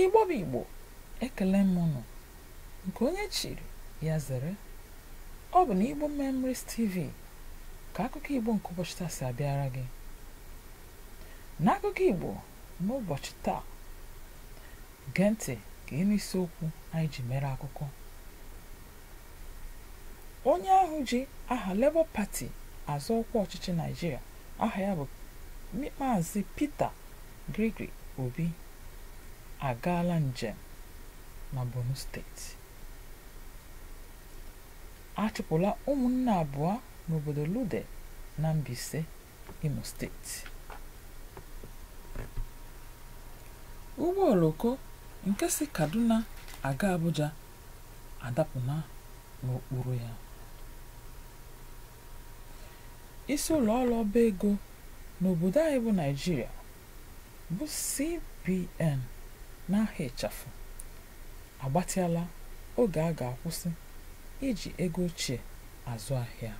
ịgbọba igbo ekele m nọ nke onye chiri ya zere ọ bụ na igbo memories tv ka akụkọ igbo nke ụbọchị taa si abịara gị n'akụkọ igbo n'ụbọchị taa gee ntị ka ị n'isiokwu anyị ji mere akụkọ onye ahụ ji aha lebo pati azụ ọkwa ọchịchị naijiria aha ya bụ maazị Peter Gregory Obi agaala njem na Borno steeti achụpụla ụmụnne abụọ n'obodo Lude na Mbaise Imo steeti ụgbọ oloko nke si Kaduna aga Abuja adapụna n'okpuru ya isi ụlọ ọrụ ọba ego n'obodo anyị bụ Naịjirịa bụ CBN n'ahịa ịchafụ agbatịala oge a ga-akwụsị iji ego ochie azụ ahịa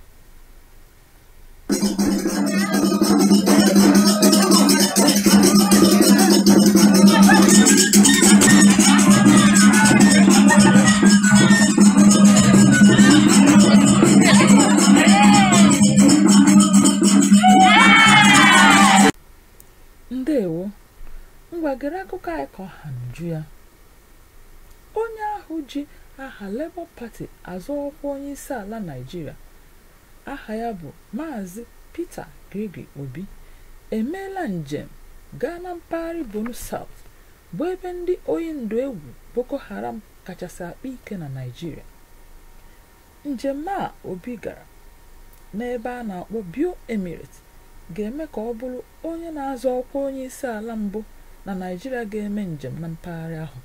Cohen onye ahụ ji aha Labour pati azọ ọkwa onye isi ala Naịjirịa aha ya bụ Maazị Peter Gregory Obi emeela njem gaa na mpaghara Borno South bụ ebe ndị oyi ndụ egwu Boko Haram kachasị akpa ike na Naịjirịa njem a Obi gara n'ebe a na-akpọ Bio Emirate ga-eme ka ọ bụrụ onye na-azọ ọkwa onye isi ala mbụ na Naịjirịa ga-eme njem na mpaghara ahụ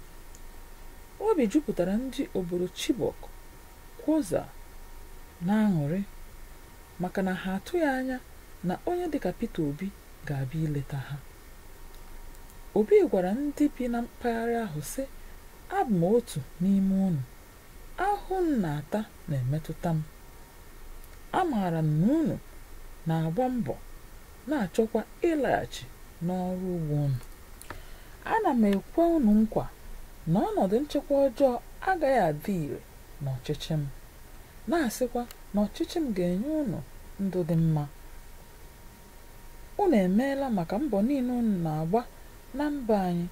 obi jupụtara ndị obodo Chibok Kwoza na-aṅụrị maka na ha atụghị anya na onye dịka pete Obi ga-abịa ileta ha Obi gwara ndị bi na mpaghara ahụ sị abụ m otu n'ime unu ahụ m na-ata na-emetụta m amaara m na unu na-agba mbọ na-achọkwa ịlaghachi n'ọrụ ugbo unu ana m ekwe unu nkwa na ọnọdụ nchekwa ọjọọ agaghị adị ire ọchịchị m na-asịkwa na ọchịchị m ga-enye unu ndụ dị mma unu emeela maka mbọ niile unu na-agba na mba anyị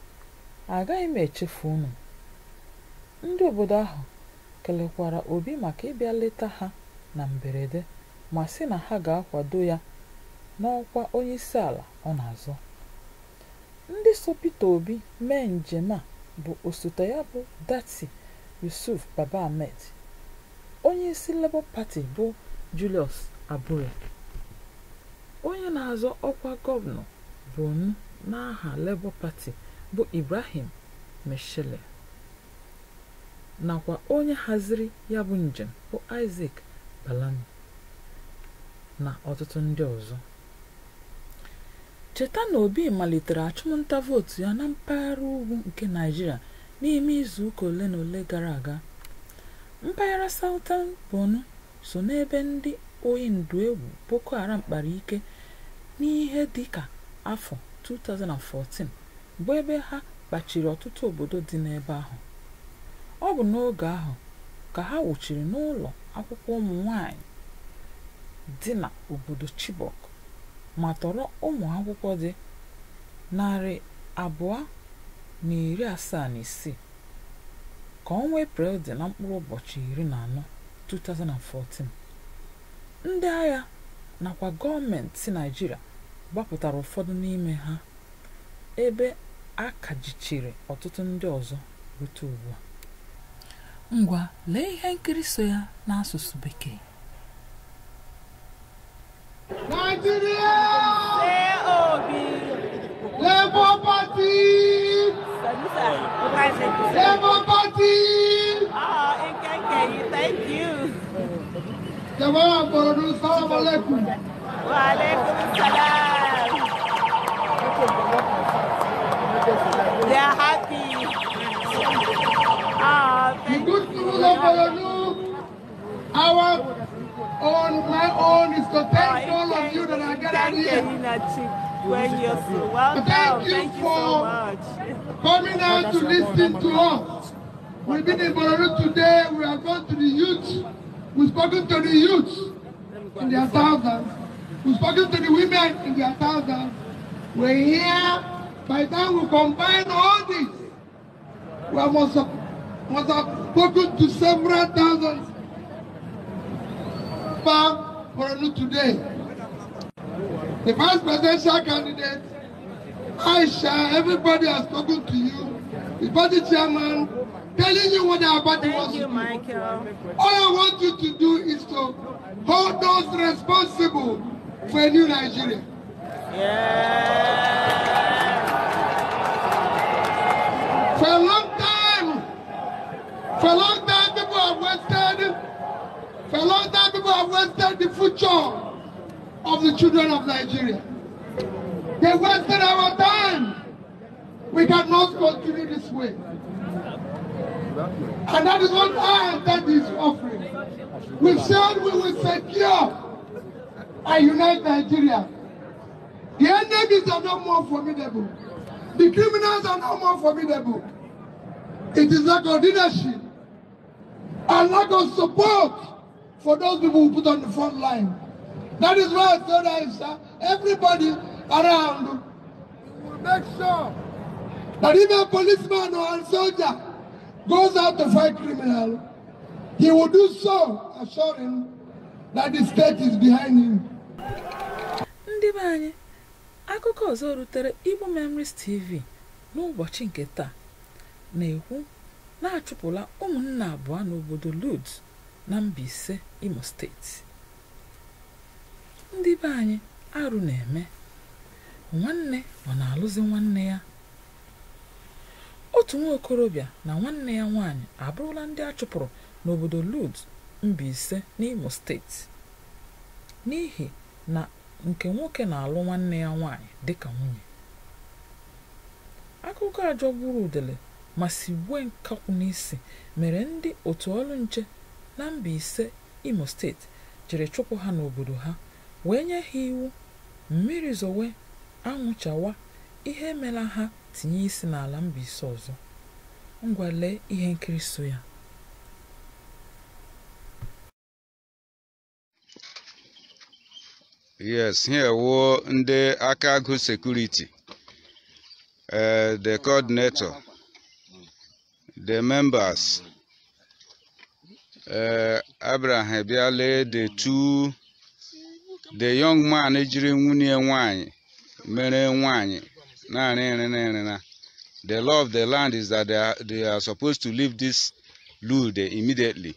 agaghị m echefu unu ndị obodo ahụ kelekwara Obi maka ịbịa leta ha na mberede ma sị na ha ga-akwado ya n'ọkwa onye isi ala ọ na-azọ ndị so Peter Obi mee njem a bụ osote ya bụ Dati Yusuf Baba Ahmed onye isi Labour Party bụ Julius Abure onye na-azọ ọkwa gọvanọ bụ na n'aha Labour Party bụ Ibrahim meshele nakwa onye haziri ya bụ njem bụ Isaac balani na ọtụtụ ndị ọzọ cheta na obi malitere achụmnta vootu ya na mpaghara ugwu nke naijiria n'ime izu ụka ole na ole gara aga mpaghara southern bonu so n'ebe ndị oyi ndu egwu boko haram kpara ike n'ihe dị ka afọ 2014 bụ ebe ha kpachiri ọtụtụ obodo dị n'ebe ahụ ọ bụ n'oge ahụ ka ha wuchiri n'ụlọ akwụkwọ ụmụ nwanyị dị na obodo chibok ma tọrọ ụmụ akwụkwọ dị narị abụọ na iri asaa na isii ka ọnwa Eprel dị na mkpụrụ ụbọchị iri na anọ 2014 ndị agha nakwa gọọmenti Naịjirịa gbapụtara ụfọdụ n'ime ha ebe a kajichiri ọtụtụ ndị ọzọ rute ugbu a. Ngwa lee ihe nkiri so ya n'asụsụ Bekee. Democracy! Ah, oh, Nkeke, thank you. Jamaa Borodu, salam alaikum. happy. Ah, thank the good news of my own, is to ah, thank all of you that are gathered here when you're so welcome. Thank you, Thank you so much. Coming out to listen to us. We've been in Bororo today. We have gone to the youth. We've spoken to the youth in their thousands. We've spoken to the women in their thousands. We're here. By the time we combine all this, we must have, must have spoken to several thousands. from Bororo today. The vice presidential candidate, Aisha, everybody has spoken to you. The party chairman, telling you what our party wants to do. All I want you to do is to hold those responsible for a new Nigeria. Yeah. For a long time, for a long time people have wasted, for a long time people have wasted the future of the children of Nigeria. They wasted our time. We cannot continue this way. And that is what I intend is offering. We said we will secure and unite Nigeria. The enemies are no more formidable. The criminals are no more formidable. It is lack of leadership and lack of support for those people who put on the front line. That is why Toda is uh, everybody around. We will make sure that if a policeman or a soldier goes out to fight criminal, he will do so, assuring that the state is behind him. Ndị be anyị, akụkọ ọzọ rutere Igbo Memories TV n'ụbọchị nke taa na-ekwu na-achụpụla ụmụnna abụọ n'obodo Lod na mba ise Imo steeti. ndị be anyị arụ na-eme nwanne ọ na-alụzi nwanne ya otu nwa okorobịa na nwanne ya nwaanyị abụrụla ndị a chụpụrụ n'obodo mba Mbaise n'Imo steeti n'ihi na nke nwoke na-alụ nwanne ya nwaanyị ka nwunye akụkọ ajọ gburu udele ma si gwe nkakwụ n'isi mere ndị otu ọrụ nche na Mbaise Imo steeti jiri chụpụ ha n'obodo ha wee nye ha iwu mmiri zowe anwụchawa ihe emela ha tinye isi n'ala Mbaise ọzọ ngwa lee ihe nkiri so ya yes here wo ndị aka security sekuriti eh, the coordinator the members uh, Abraham Biale the 2 the young man jiri nwunye nwanyị mere nwanyị naanị na. the law of the land is that they are, they are supposed to leave this lude immediately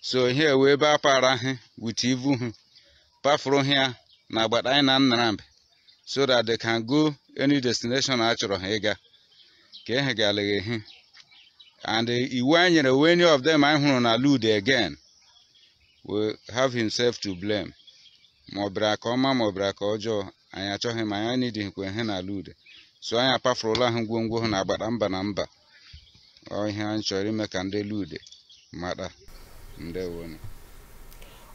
so here we ebe para with ivu ha from here na agbata na Nnamdi so that they can go any destination a chọrọ ha ịga ka and iwu anyị nyere any of them anyị hụrụ na lude again will have himself to blame ma ọ bịara aka ọma ma ọ bịara aka ọjọọ anyị achọghị ma anyị nidihikwa ihe n'ala ude so anyị ụlọ ahụ ngwongwo hụ na agbada mba na mba ọ ihe anyị chọrọ ime ka ndị lude mata ndewonu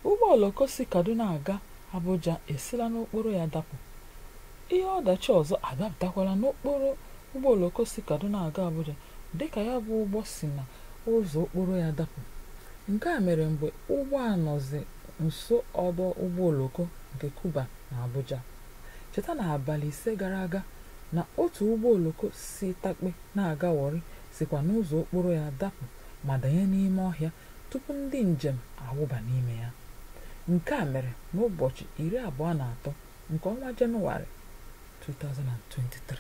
ụgbọ oloko si kaduna aga abuja esila n'okporo ya dapụ ihe ọdachi ọzọ adapụtakwala n'okporo ụgbọ oloko si kaduna aga abuja dịka ya bụ ụgbọ si na ụzọ okporo ya dapụ Nke a mere mgbe ụgbọ a nọzi nso ọdọ ụgbọ oloko nke Cuba na Abuja, cheta na abalị ise gara aga na otu ụgbọ oloko si Takpe na-aga sịkwa sikwa n'ụzọ okporo ya dapụ ma danye n'ime ọhịa tupu ndị njem awụba n'ime ya, nke a mere n'ụbọchị iri abụọ na atọ nke ọnwa Jenụwarị 2023.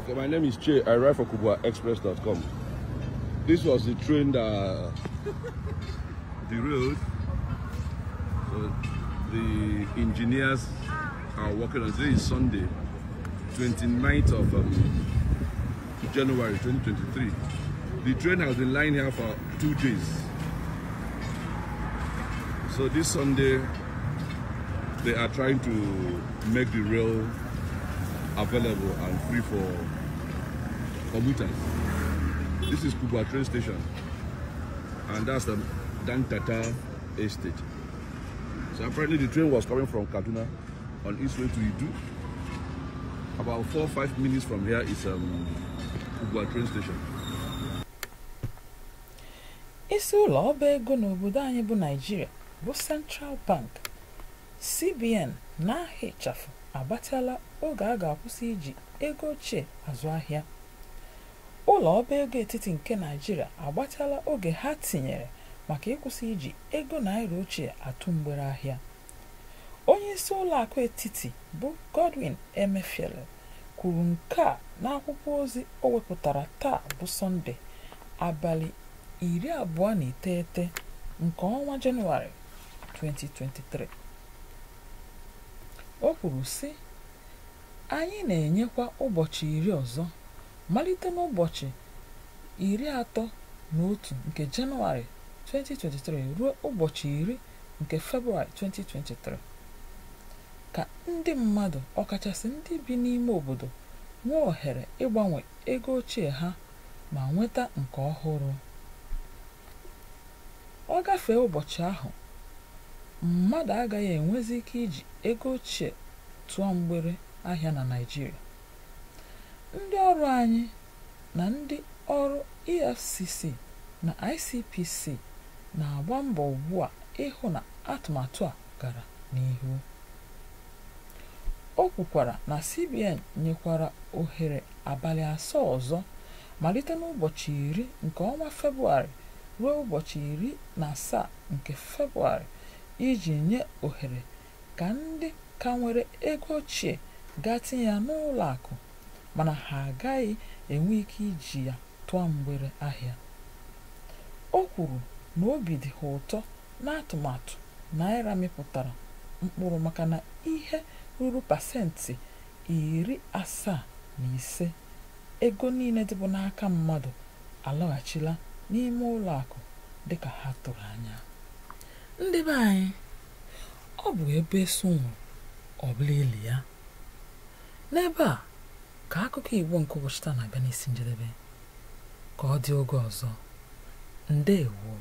Okay, my name is I write for This was the train that derailed. So the engineers are working on today is Sunday, 29th of um, January 2023. The train has been lying here for two days. So this Sunday, they are trying to make the rail available and free for commuters. This is Kuba train station. And that's the Dantata estate. So apparently the train was coming from Kaduna on its way to Idu. About four or five minutes from here is um, Kubwa train station. isi ụlọ ọba ego n'obodo anyị bụ naijiria bụ central bank cbn na ahịa ịchafụ abatala oge a ga-akwụsị iji ego ochie azụ ahịa ụlọ ọba ego etiti nke naijiria agbatala oge ha tinyere maka ịkwụsị iji ego naira ochie atụ mgbere ahịa onye isi ụlọ akụ etiti bụ godwin emefiele kwuru nke a n'akwụkwọ ozi o wepụtara taa bụ sọnde abalị iri abụọ na iteghete nke ọnwa jenụwarị 2023 o kwuru sị anyị na-enyekwa ụbọchị iri ọzọ malite n'ụbọchị iri atọ na otu nke Jenụwarị 2023 ruo ụbọchị iri nke Febụwarị 2023 ka ndị mmadụ ọkachasị ndị bi n'ime obodo nwee ohere ịgbanwe ego ochie ha ma nweta nke ọhụrụ ọ gafee ụbọchị ahụ mmadụ agaghị enwezi ike iji ego ochie tụọ mgbere ahịa na Naịjirịa ndị ọrụ anyị na ndị ọrụ EFCC na ICPC na-agba mbọ ugbu a ịhụ na atụmatụ a gara n'ihu o kwukwara na CBN nyekwara ohere abalị asaa ọzọ malite n'ụbọchị iri nke ọnwa Febụwarị ruo ụbọchị iri na asaa nke Febụwarị iji nye ohere ka ndị ka nwere ego ochie gaa tinye ya n'ụlọ akụ mana ha agaghị enwe ike iji ya tụọ mgbere ahịa o kwuru na obi dị ha ụtọ na atụmatụ naira mịpụtara mkpụrụ maka na ihe ruru pasentị iri asaa na ise ego niile dịbụ n'aka mmadụ alaghachila n'ime ụlọ akụ dị ka ha tụrụ anya ndị be anyị ọ bụ ebe eso ili ya n'ebe a ka akụkọ igbo nke ụbọchị taa na-abịa n'isi njedebe ka ọ dị oge ọzọ ndeewo